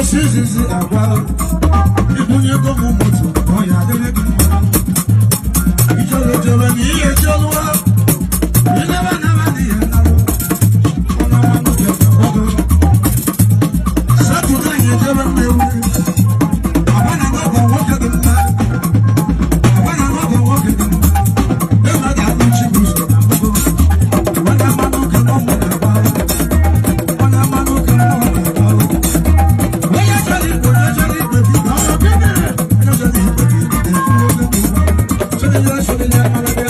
osi izizi agwa ibunye ego m moto ọ ya adịrị gị mma ijoro joro na ihe joro Thank you.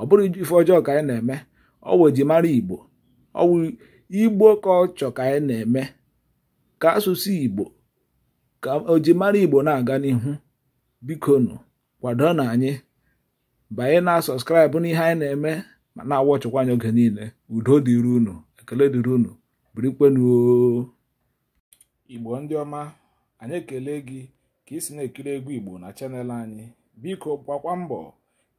ọ bụrụ ife ọjọọ ka anyị na-eme ọ wụ ejimara igbo ọ igbo ka ọ chọ ka anyị na-eme ka asụsụ igbo ka ojimara igbo na-aga n'ihu bikonu kwado na anyị banye na sọskraịbụ n'ihe anyị na-eme ma na-awọ chụkwa anyị oge niile udo dịrị unu ekele dịrị unu birikwenuo igbo ndị ọma anyị ekele gị ka ị si na-ekiri egwu igbo na chanel anyị biko gbakwa mbọ